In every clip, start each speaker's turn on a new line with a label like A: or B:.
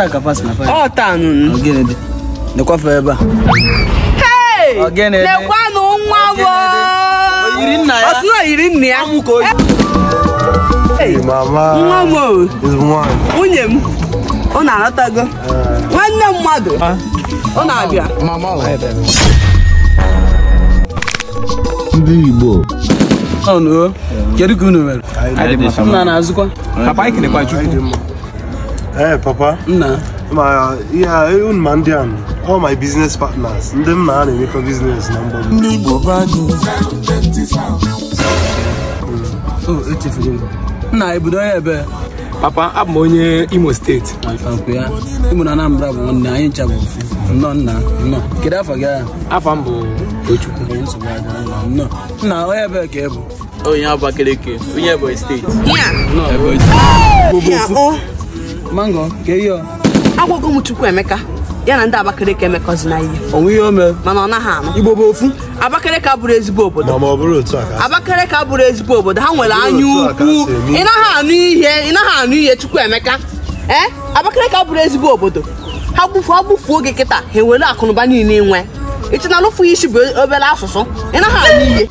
A: ọ ebe a hey nwa ya nna ya nwa m nwunye m ọ na uh. nwanne mmadụ ah. ọ na-abịa ndị Igbo kedu ka unu mere na-azụkwa ee papa nna ma ya unu ma ndị anụ all my business partners ndị m na ha na-emekọ biznes na mgbe ndị Igbo oh, e nna ebido onye ebe papa abụ m onye Imo steeti Imo na Anambra bụ nwanne anyị ncha bụ nna nna nnọọ kedu afọ gị agha afọ m bụ Tochukwu nna onye ebe ka ị bụ onye Abakaliki onye Ebonyi steeti mango ka ihe akwụkwọ m chukwu emeka ya na ndị abakaliki emekọzina ihe onwe ihe ome mana ọ naghị anụ igbo bụ ofu abakaliki abụrụ ezigbo obodo ma ọ bụrụ otu a abakaliki abụrụ ezigbo obodo ha nwere anya ukwu ị naghị anụ ihe ị naghị anụ ihe chukwu emeka ee eh? abakaliki abụrụ ezigbo obodo ha gbufuo ha gbufuo oge kịta ha ewere akụnụba niile nwe ịchịna ya isi bụ obere asụsụ ị naghị anụ ihe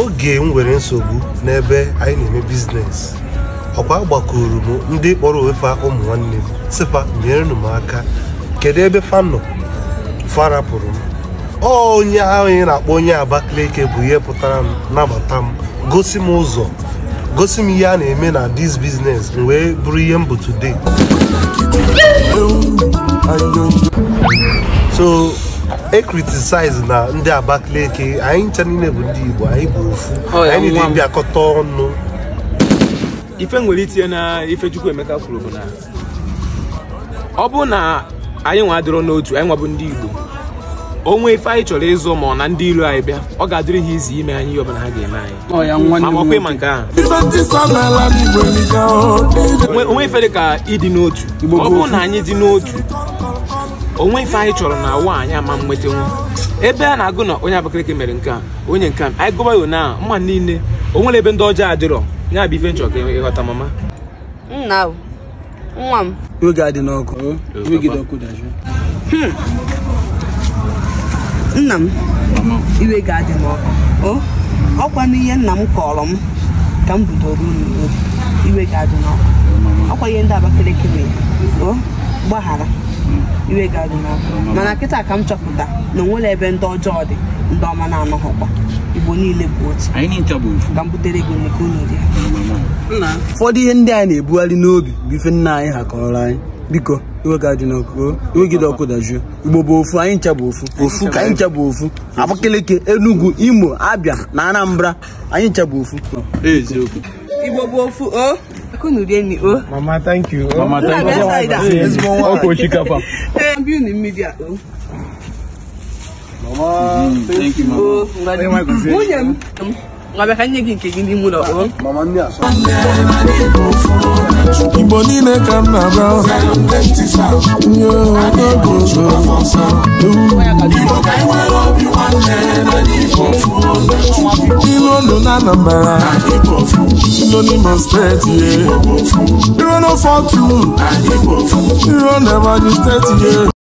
A: oge m nwere nsogbu n'ebe anyị na-eme biznes ọkwa gbakwuru m ndị kpọrọ onwe fa ụmụ nwanne m sịkwa nyerenu m aka kedu ebe fanọ farapụrụ m onye ahụ ị na-akpọ onye Abakaliki bụ ihe pụtara m nabata m gosi m ụzọ gosi m ihe a na-eme na dis biznes m wee bụrụ ihe m bụ today so e kritisaize na ndị Abakaliki anyị ncha niile bụ ndị Igbo anyị bụ ofu oh, anyị niile bịakọta ọnụ ife nwere itinye na ife emeka kwuru bụ na ọ bụrụ na anyị nwa adịrọ n'otu anyị nwa bụ ndị igbo onwe ife anyị chọrọ ịzụ ma ọ na ndị iro anyị bịa ọ ga-adịrị ha izi ime anyị ihe ọbụla ha ga-eme anyị ma ọkwa ịma nke ahụ onwe ife dị ka ịdị n'otu ọ na anyị dị n'otu onwe ife anyị chọrọ na ụwa anyị ama nweta nwe ebe a na-agụ na onye Abakaliki mere nke a onye nke a anyị gụba na mma niile o nwere ebe ndị ọjọọ adịrọ ya bụ ife nchọ ka ịghọta mama nna nwa m oge adị n'ọkụ hmm. nna m iwe ga-adị n'ọkụ Ọ ọkwa ihe nna m kọrọ m ka m bidoro unu iwe ga-adị n'ọkụ ọkwa ihe ndị Abakaliki mere o gbaghara iwe ga-adị n'ọkụ mana kịta ka m chọpụta na onwere ebe ndị ọjọọ dị ndị ọma na-anọghọkwa Igbo niile bụ otu ka ụfọdụ ihe ndị anyị na-ebugharị n'obi bụ ife nna anyị ha kọrọ anyị biko iwegide ọkụ dajuo igbo bụ ofu anyị ncha bụ ofu ofu ka anyị ncha bụ ofu abakaliki enugu imo abịa na anambra anyị ncha ofu igbo bụ ofu o Mama, mhm. thank, you, Mama. Munye, ngabekanye kinke gini mula o. Oh? Mama ni aso. Ibo ni ne kam na ba. Yo, go go go. Ibo kai wa love you one day, na di fofu. Ilo no na na ba. Ilo ni mo straight ye.